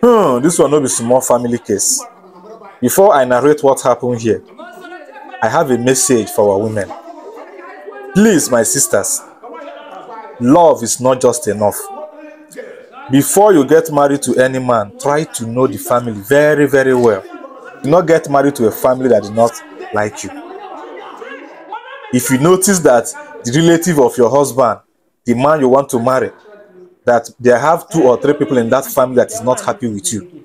Hmm, this will not be small family case. Before I narrate what happened here, I have a message for our women. Please, my sisters, love is not just enough. before you get married to any man try to know the family very very well do not get married to a family that not like you if you notice that the relative of your husband the man you want to marry that they have two or three people in that family that is not happy with you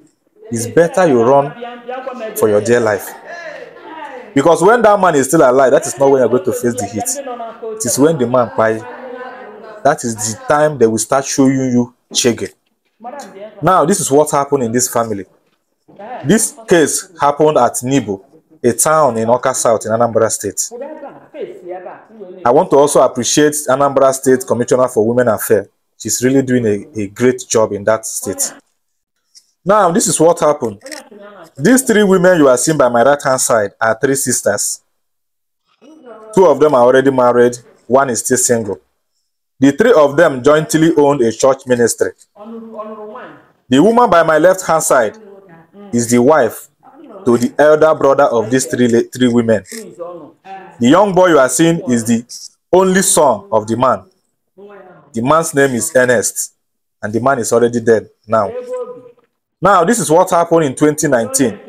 it's better you run for your dear life because when that man is still alive that is not when you're going to face the heat it is when the man cries. that is the time they will start showing you Chege. Now, this is what happened in this family. This case happened at Nibu, a town in Oka South in Anambra State. I want to also appreciate Anambra State Commissioner for Women Affairs. She's really doing a, a great job in that state. Now, this is what happened. These three women you are seeing by my right-hand side are three sisters. Two of them are already married. One is still single. The three of them jointly owned a church ministry. The woman by my left hand side is the wife to the elder brother of these three, three women. The young boy you are seeing is the only son of the man. The man's name is Ernest, and the man is already dead now. Now, this is what happened in 2019.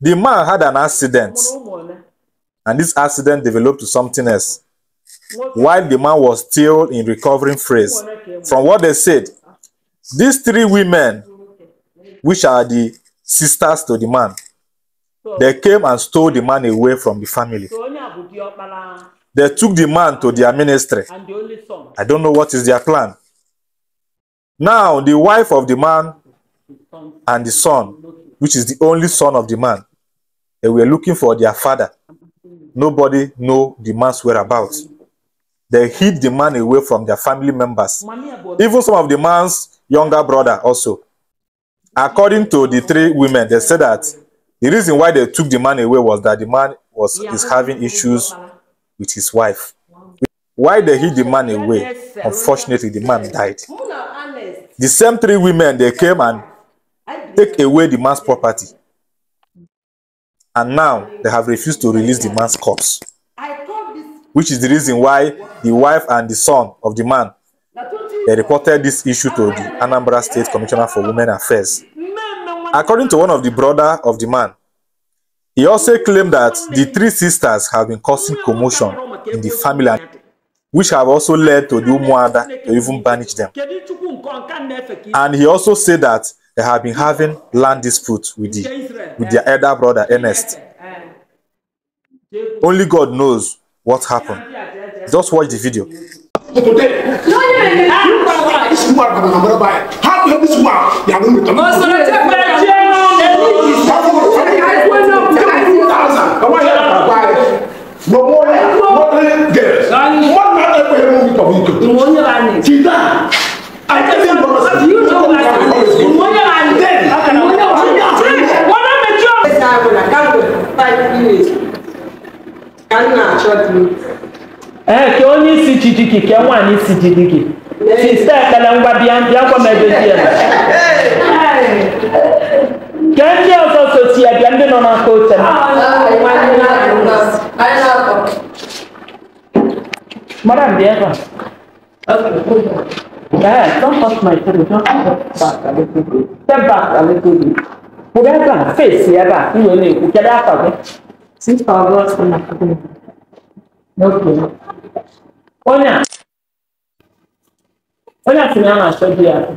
The man had an accident, and this accident developed to something else while the man was still in recovering phase. From what they said, these three women, which are the sisters to the man, they came and stole the man away from the family. They took the man to their ministry. I don't know what is their plan. Now, the wife of the man and the son, which is the only son of the man, they were looking for their father. Nobody know the man's whereabouts. they hid the man away from their family members, even some of the man's younger brother also. According to the three women, they said that the reason why they took the man away was that the man was is having issues with his wife. Why they hid the man away? Unfortunately, the man died. The same three women, they came and take away the man's property. And now they have refused to release the man's corpse which is the reason why the wife and the son of the man they reported this issue to the Anambra State Commissioner for Women Affairs. According to one of the brother of the man, he also claimed that the three sisters have been causing commotion in the family, which have also led to the Umuada to even banish them. And he also said that they have been having land disputes with, the, with their elder brother, Ernest. Only God knows what happened. Just watch the video. Thank you ee ka onye isi jijigi ka nwaanyị isi jijigi sista ekpere ngwa bịa bịa gwa m ebe di ya ka ndị ọzọ so ya bịa ndị nọ n'aka oche m mara m bịa ebe a don't touch my table don't step back a little bit step back a little bit pụrụ ebe a face ebe a i wee na-ekwu kedu afa gị Since our Lord's on a problem. No problem. Ona. Ona tunaona sodi yako.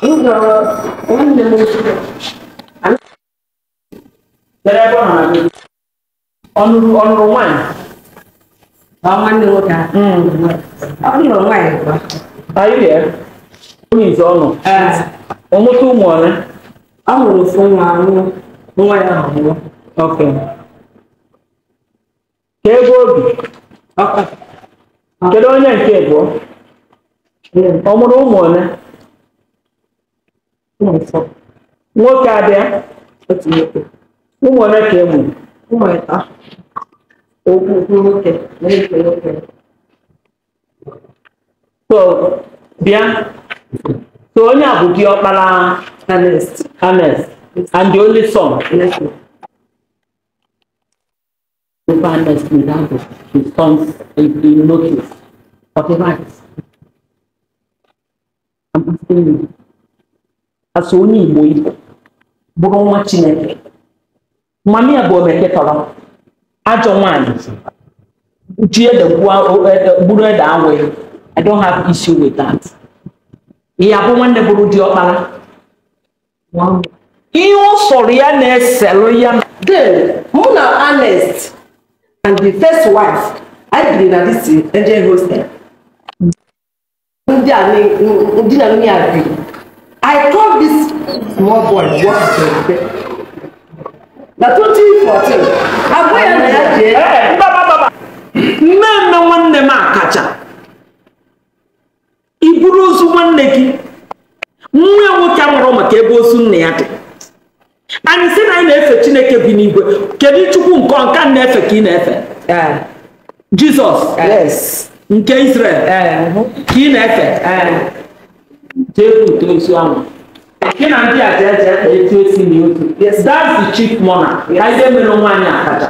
Hivyo umne mwisho. Derebo na mimi. Onuru onuru mwana. Mama ni wota. Mm. Onuru mwana. Are you there? Who is ono? Oh eh. Uh. Omutu mwana. Amụrụ mụrụ ofu nwa anwụ nwa ya anwụọ oke ka ebe obi ọka kedu onye nke abụọ ọ mụrụ ụmụ ole nwoke abịa otu nwoke ụmụ ole ka e nwere ụmụ ịta okwu nwoke na-efe nwoke bịa So onye a bụ diọkpara Ernest Ernest and the only son. Papa Ernest Ndabo his sons in notice for rights. I'm asking you. Asọ onye Igbo Igbo bụrụ nwa Chineke. Mami a bụ omeketọrọ ajọ nwaanyị ji ede gburu e, e, ede awụ I don't have issue with that. ya bụ nwanne bụrụ di ọkpara ihe ụsọrọ ya na-eselụ ya then mụ na Anest and the first wife anyị biri na dis angel hostel ndị a ndị na nwunye a bi I call this small boy what to na 2014 eh, agwa ya na ya jee nne nne nwanne m akacha i buru ozu nwanne gị nwa nwoke a mụrụ maka ebe ozu nna ya dị anyị sị na anyị na-efe chineke bi n'igwe kedu chukwu nke ọnka na-efe ka ị na-efe jizọs nke israel ka ị na-efe jebute ozu ahụ gị na ndị aja aja na that's the chief monarch ka ihe mere nwaanyị akaja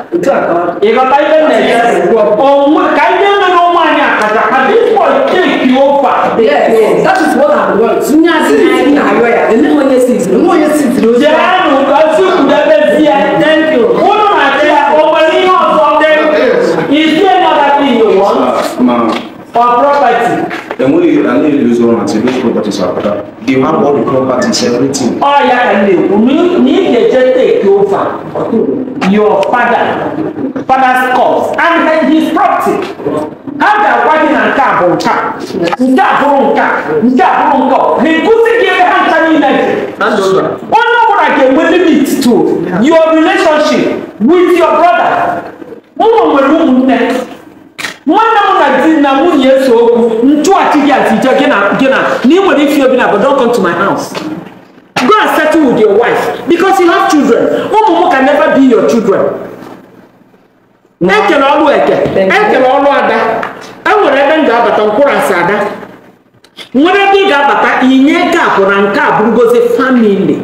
ịghọta ihe na-eje ka ihe mere nwaanyị akaja ka cake you over. yes yes that is what i want. ní àti ní àárọ̀ yà The name yẹ six ní wọ́n yẹ six ní ojú. jẹ́nu kan sí kùdẹ́bẹ̀ sí ẹ thank you. wọ́n náà máa jẹ́ ọmọ ní ọ̀sán tẹ́lẹ̀ ìṣe another thing you want for property. Then when you and you lose one and say they have all the properties, everything. Oh yeah, and they need the jet your father, father's cause and his property hata kwani na nke abụrụ nka nke abụrụ nka nke abụrụ nka na ekuzi gị ebe ha nka niile onye ọbụla ga-enwe limit to your relationship with your brother ụmụ nwere ụmụnne nwanne m na di na nwunye eso okwu ntụghachi gị atije gị na gị na na ị nwere ifi obi na don't come to my house go and settle with your wife because you have children ụmụ m can never be your children E ekele ọlụ eke ekele ọlụ ada enwere ebe m ga-abata nkwụrasị ada nwere ebe ị ga-abata inye nke a nke a ngozi famili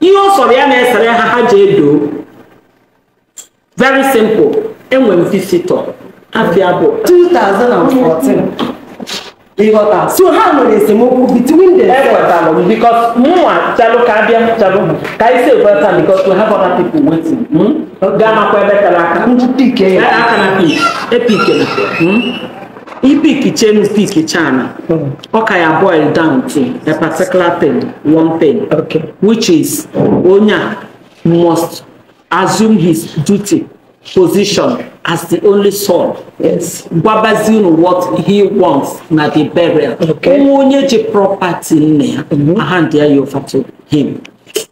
ihe ọ sọrọ ya na-esere ha ha ji edo. very simple enwe m visitọ afịa bụ 2014 so ha nwere isi e ekweta gama kwa ebe tara aka nju pike ya aka na pike e pike na i hmm? pike chenu pike chana hmm. ọka ya boil down to a particular thing one thing okay. which is onya must assume his duty position as the only son yes gwabazi unu what he wants na the burial okay nwa onye ji property nne ya mhm. ahandi ya yofa to him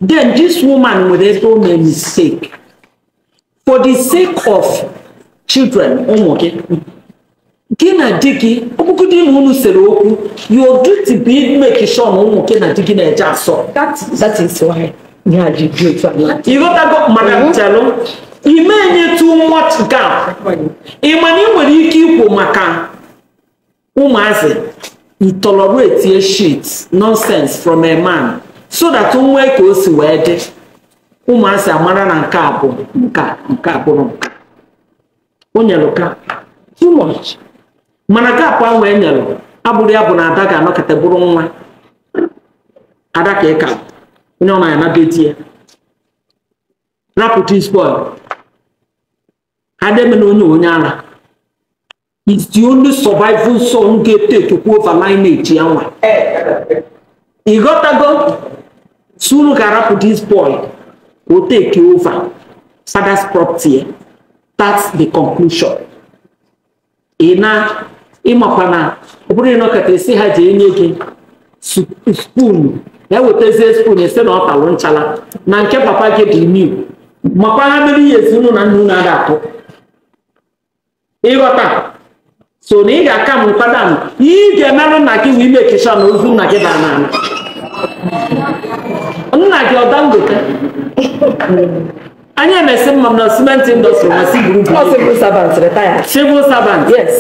then this woman nwere ebe o mee mistake for the sake of children ụmụ gị gị na di gị ọkpụkụ di na unu sere okwu your duty bụ imeki sure na ụmụ gị na di gị na-eje asọ that is why ya ji dị otu ala ịghọtago maka ntelụ ime enye too much gap ị ma na ị nwere ike ikwu maka ụmụazị you tolerate shit nonsense from a man so that nwee ka o si wee dị ụmụasị amara na nke a bụ nka nke a bụrụ nka o nyelụ ka too much mana kapụ ahụ e nyelụ abụrụ ya bụ na ada ga-anọkọta bụrụ nwa ada ka ịka onye ọ na-anaba eti ya rapụta spoil ha na-emena onye onye ara is the only survival son ga-etetukwu over lineage ya nwa ịghọtago sunu ga-arapụta spoil will take over Saga's property. Eh? That's the conclusion. Ị na ịmakwa na ọ bụrụ na ọkata esi ha ji enye gị spoon ya wetazie spoon esi na ọ talụ nchala na nke papa gị dị new makwa ha mere ihe esi unu na nna unu ada atụ ịghọta so na ị ga-aka m nkwadanụ ihe ị ga-emerụ nna gị wee mekecha na ozu nna gị dara n'ala nna gị ọ dangote anya na esi mma m na cement industry ma si buru buru. ọ civil servant retire. civil servant. yes.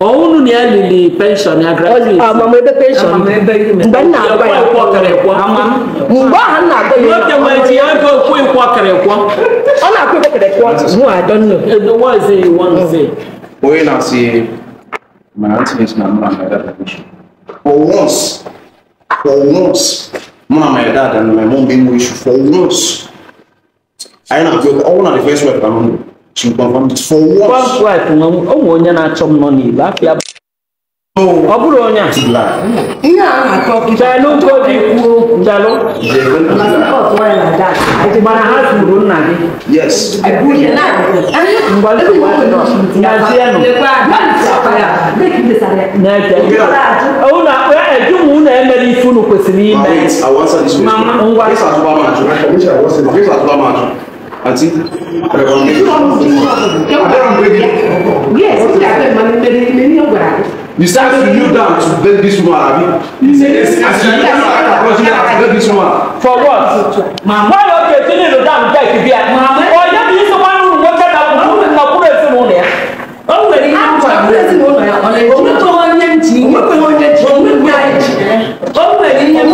ọhụrụ na ya lili penshọn ya gratuit. amamebe penshọn mgbe m na-agwa ya mgbe ahụ m na-agwa ya n'okwu nwoke nwere ji ya ego okwu ịkwọ kịrịkwọ. ọ na-akwụ ịkwọ kịrịkwọ mu adọnụ. edo wazi wanzi. onye na-asị mana ntị na mma na ya for once for once mụ na my dad na my mom bụ inwe issue for once anyị na-abịa ọnwụ na the first wife ka nọ ṣùgbọ́n for what. first wife nwa ụmụ onye na-achọ m nọ n'igbo afịa oh. ọ bụrụ onye a ihe a na-akọ jalụ godi kwuo jalụ mana ha kwuru nna gị unu akpa ejum unu emere ife unu kwesịrị ime ngwa àti ah, you start to kneel down to beg this woman abi. as you kneel down across you have to beg this woman. for what. mama yóò kè tí nílò dáhùn jẹ́ ìbí ẹ̀. ọ̀yẹ́ mi sọ wá nínú wọn kẹ́ta kúrú nínú ọkùnrin èsì mú nìyẹn. ó wẹ̀ ní àwọn ọkùnrin èsì mú nìyẹn. ọ̀lẹ́ ìwé tó wọ́n yẹn jì í. ó wẹ̀ ní ẹ̀mí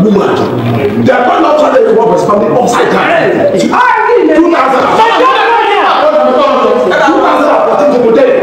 woman the man not try to work with family upside down two thousand two thousand and fourteen to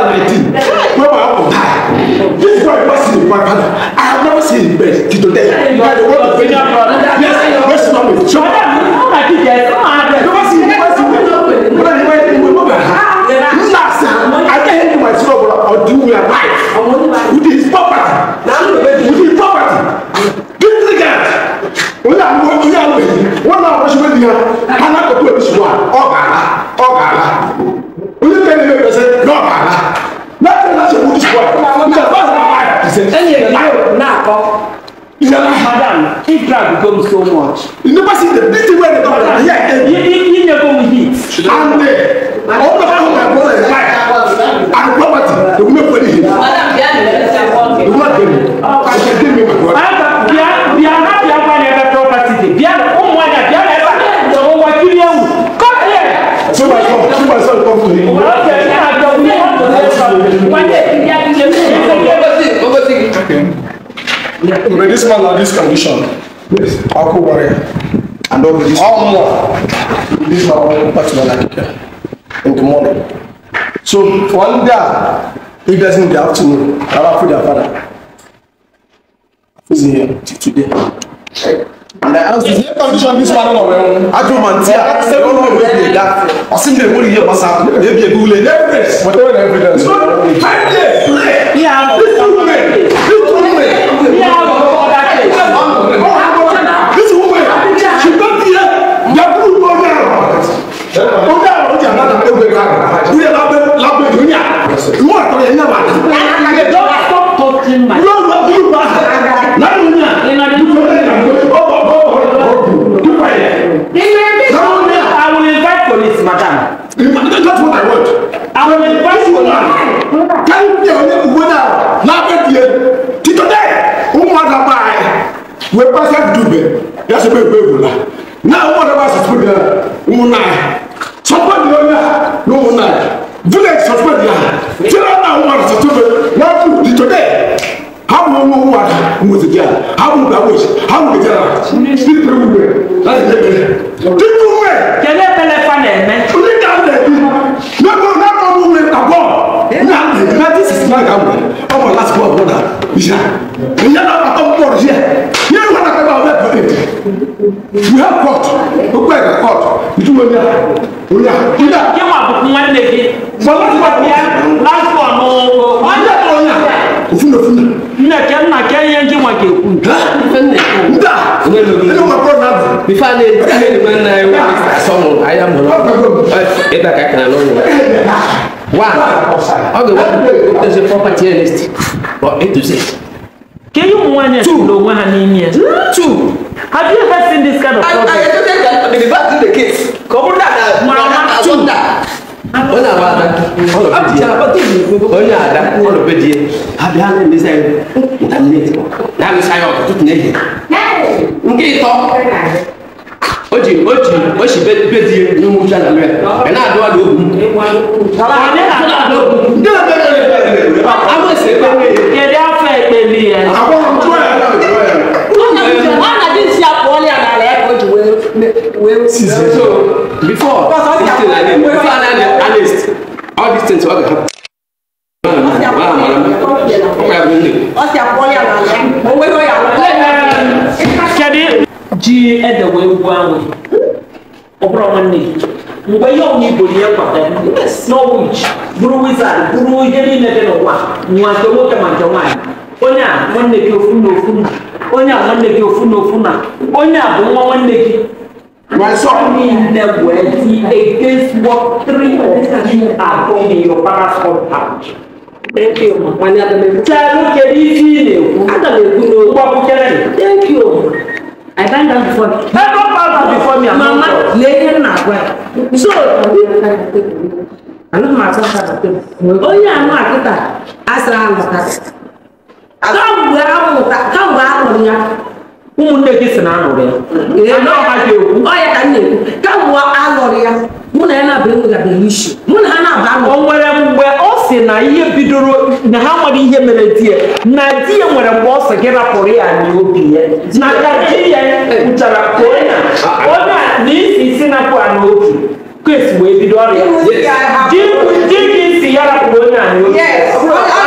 Salve tu! Pharaoh now come. You know, madam, if drug become so much. You never see the beating where they come from. Yeah, you, you, you never will hit. And uh, all the people my brother is like, and property, they will make money. Yeah. But this man had this condition. Yes. Akubare. And all this. All more? This man come back to Nigeria in the morning. So one day, he gets in the afternoon, around for their father. He's here today. And I asked, is condition this man on our I told man, I asked him, no, where they got. I seen them, what do you hear, what's happening? Maybe a Google, evidence. Whatever evidence. It's not, five days. Yeah, se bɛ bɛ wula na wɔn dɛ b'a sɔsɔ diya ŋun na yɛ sɔsɔ diya o yɛ ni ŋun na yɛ village sɔsɔ diya jira na wɔn dɛ sɔsɔ bɛ n'a kun di to dɛ how wɔn wɔn wɔn ada ŋun ti diya how wɔn bɛ awɔ yi how wɔn bɛ diya la ti tɛ wuli bɛ n'a ti tɛ bɛ ti tu bɛ. jɛnɛ bɛlɛ fa nɛ mɛ. o ni da bɛ du ne ko ne ko mun bɛ ka bɔ n'a bɛ n'a ti sisi n'a ka mun ɔ ma lasigbɔ bɔ da yira yala a ka bɔ yɛ you have court gbogbo ẹ̀ka court ìtumọ̀ ní a ò ní a. kí wọn àbùkù wọn lè fi. bọ́lá ti wà ní lásìkò ọ̀nà wọn yẹ kọ́ ọ̀nà òfin òfin nna kẹ nna kẹ yẹn kí wọn kẹ kú. nta ẹni wọn kọ náà. bifa ne ne ni ma na ye wa sọmọ a mọ ẹ ẹ da ka kana lọrùn wa ọ bẹ wa ọ tẹ se property list ọ e tu se. kéyìn mu wa ni ẹ ti lo wa ni ni ẹ. two. Have you ever seen this kind of problem? I, I just said that the back to the kids. Come on, that. Mama, two. Wọ́n náà wá àdá ọ̀nà àdá ọ̀nàbẹ̀dì yẹ abẹ́ alẹ́ mi sẹ́yìn ntàmínà ètò náà sáyọ̀ ọ̀tún tún ẹ̀yẹ. Nkí tọ́ o jì o jì o sì bẹ́ẹ̀dì yẹ ní mú sálà mẹ́rẹ̀ ẹ̀ náà dọ́wà ló gùn. Ọ̀nà àdá ló gùn. Ndé o bẹ́ẹ̀ lọ rẹ̀ bẹ́ẹ̀ rẹ̀ bá kọ́. Àwọn èsè bá mi. cases yẹn. so before this thing like this before i dey analyst all these things wey dey happen. gye ɛda wɔawu awo ɔbrɔ mo ne ngbɛyɛ ɔmo iboliɛ kwata norwich brewizard brew yɛni ne de ne wa nwankɛwo kɛmankɛwa yi onye a nwanne gị ofu na ofu na onye a nwanne gị ofu na ofu na onye a bụ nwa nwanne gị running the wealthy against what three of you are doing in your parents' compound. Thank you. Wani Adam Ekwu. Tí a ló kẹ́ bí fí ni èkú. Adam Ekwu ni òkú akúkẹ́rẹ́ ni. Thank you. I done that before. Ẹ bá bá bá before me àmọ́ ọ̀tọ̀. Mama lè ní nà àgbà. So. Àná mà sọ sábà pé. Onye àná àkúta, a sara àmụta. Kàmgbé àmụta, kàmgbé àmụta. ụmụnne gị si na anụrụ ya ekwu ya mụ na ya na mụ na ha na o nwere mgbe ọ si na ihe bidoro na ha nwere ihe mere di ya na di ya nwere mgbe ọ sị gị rapụrụ ya n'obi ya na ka di ya onye a na isi isi napụ ya n'obi wee bido ọrịa di gị si ya rapụrụ onye a n'obi